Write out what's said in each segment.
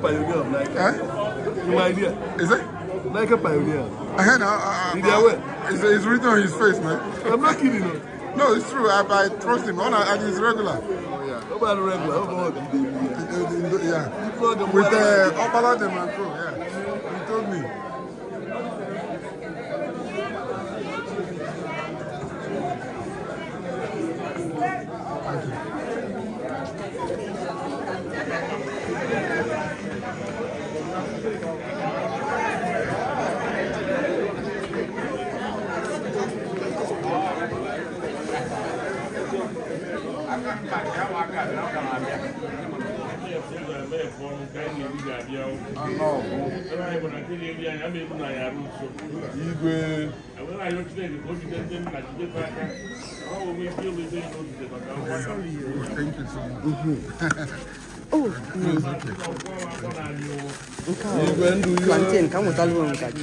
pioneer of Nike. Eh? In my idea. Is it? Nike pioneer. I heard now. In their way. It's, it's written on his face, man. I'm not kidding. No, no it's true. I, I trust him. On, and he's regular. Oh, yeah. Nobody regular. Nobody. Yeah. Uh, yeah. With the uh, man Demanco, yeah. anyị bụ na nke na-eri anyị ama ebu na anyị arụ nso plantain ka m nwetala ụlọ nka gị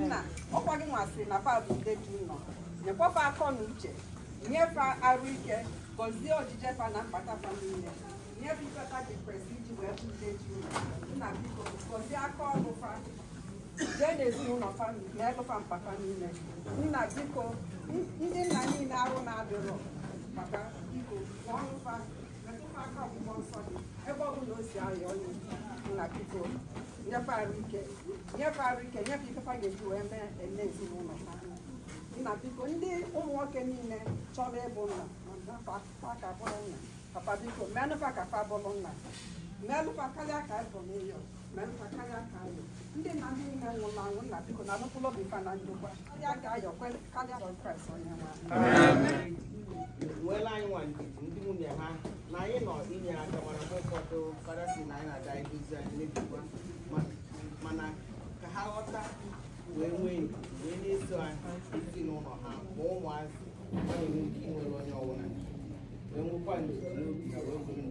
nna ọkwa gị na fa bụ nde gị nọ nyekwafa akọ na uche nyefe arụ ike gọzie ojije fa na mkpata fa niile nyefe ikpeta gị kwesịrị iji wee bụ nde gị ụlọ nna biko gọzie aka ọrụ fa jee n'ezinụlọ fa na ebefa mkpata niile nna biko ndị nna niile arụ na-adịrọ maka biko ọrụ fa metụta aka ọgwụgwọ nsọ gị ebe ọ bụla o si arịa onye nna biko nyefe ike nyefe arụ ike nyefe ifefa ga-eji wee mee eme ezinụlọ ha nna biko ndị ụmụ nwoke niile chọrọ ịbụ nna papa biko melụfa ka fa bụrụ nna melụfa karịa ka ịbụ karịa ka ayọ ndị na ndị nwụrụ nna biko na alụpụlụ obi na karịa ka ayọ karịa kraịst ndị nwunye ha na anyị nọ na anyị na-aga ihe anyị mana ka ha ghọta wee nwee wee na-eso ezinụlọ ha ma ụmụazị ọ na-enwe ike inwere onye ọbụla wee nwekwa n'obi na wee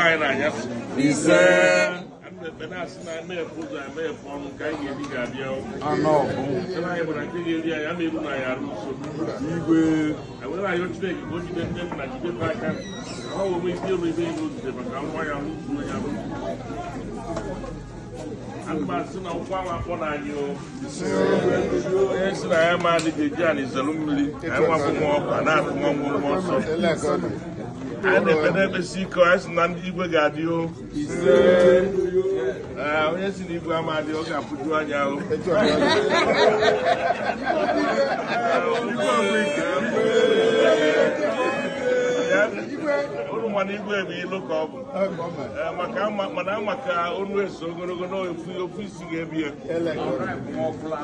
line na anya so. Ise. Ana asị na ana efu ụzọ ana efu ọnụ ka anyị ga-ebi ga-abịa ọkụ. Anọ ọbụ. Sị na anyị gbara nke ga-eri anyị ama ebu na ya arụ nsogbu. Igwe. Enwere anyị Chineke ka o jide nne nna jide pa aka. Ọ bụ ome isi anyị na-ekpere ekpesi ike anyị sị na ndị igwe ga-adị o eh, onye si na igwe ama adị ọ ga-apụju anya o igwe eh, ọgwụ ama na igwe ilu ka ọ bụ eh, mana ama onu eso ogologo na isi ga-ebi ya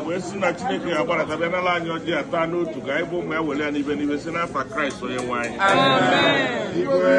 wee si na chineke ga agbara bịa n'ala anyị ọjị ata n'otu ka anyị bụ ya were ya n'ibe n'ibe si n'afa kraịst onye nwe